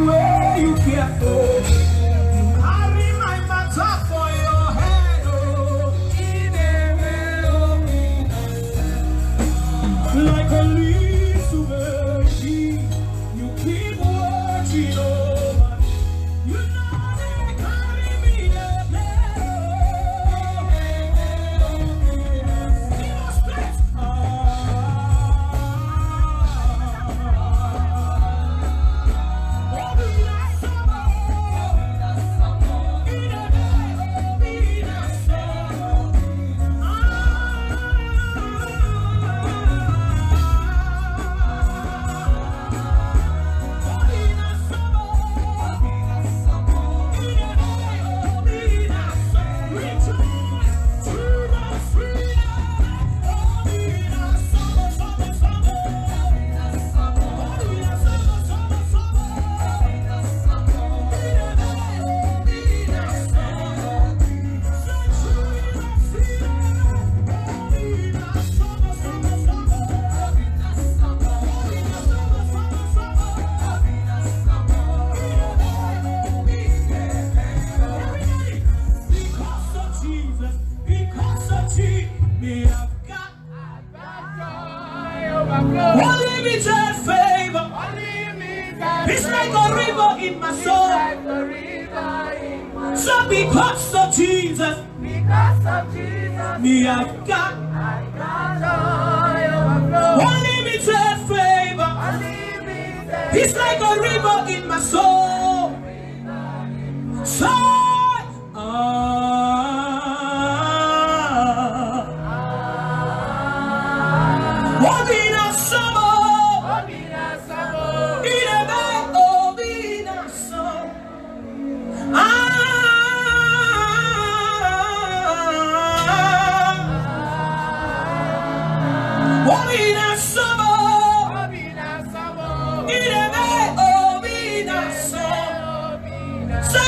meio que é pouco. like a river in my soul. soul.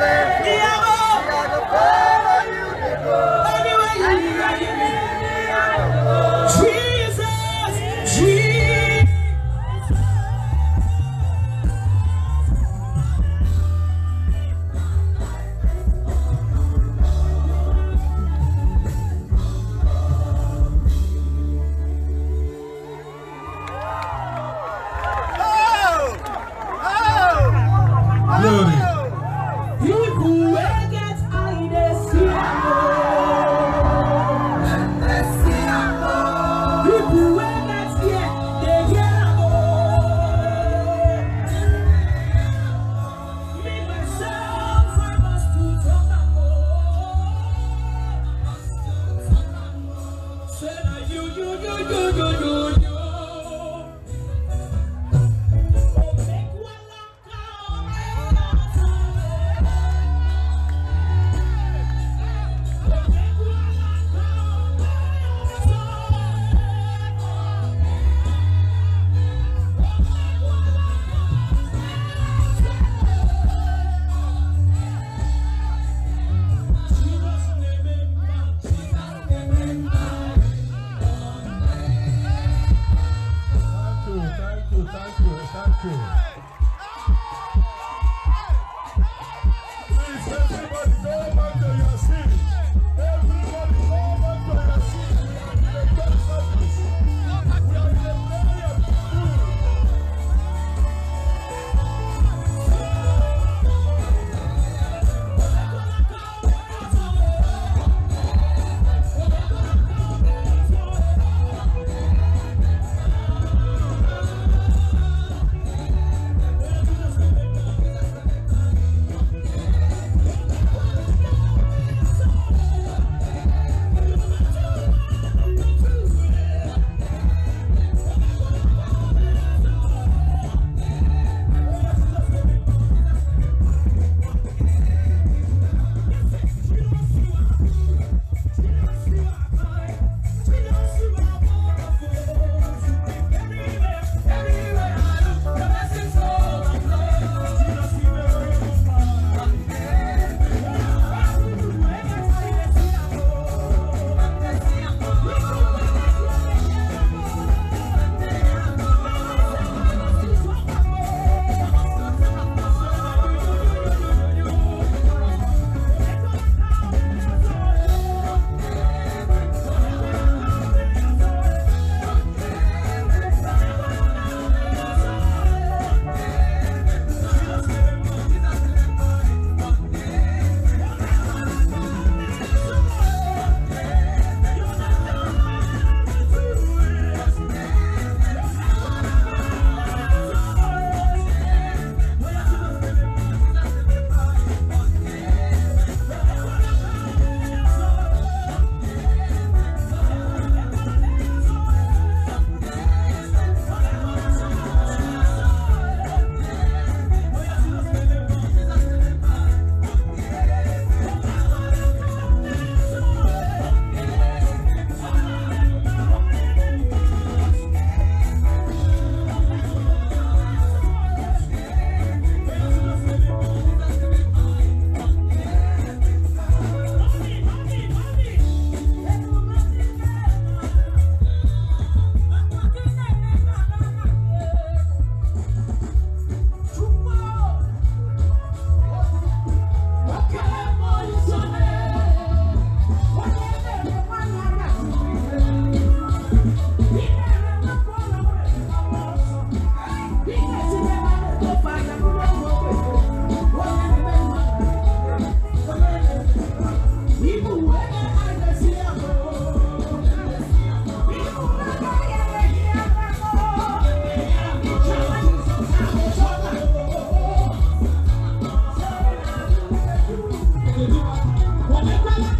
Verde. Come on, come on, come on.